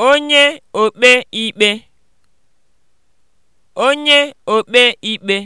onye okpe ikpe onye okpe ikpe